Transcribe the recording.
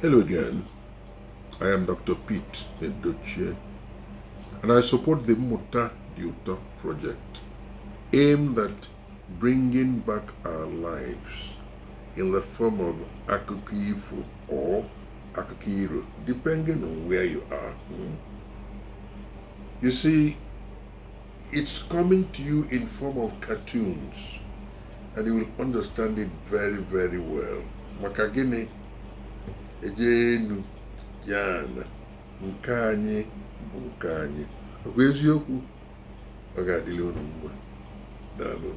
Hello again. I am Dr. Pete Ndoche, and I support the Muta Duta project aimed at bringing back our lives in the form of akukifu or akukiru, depending on where you are. Hmm? You see, it's coming to you in form of cartoons, and you will understand it very, very well. Makagini eje elu ya na nke anyị bụ nke anyị bụ eziokwu ọ ga-adịla unu mgbe daalụ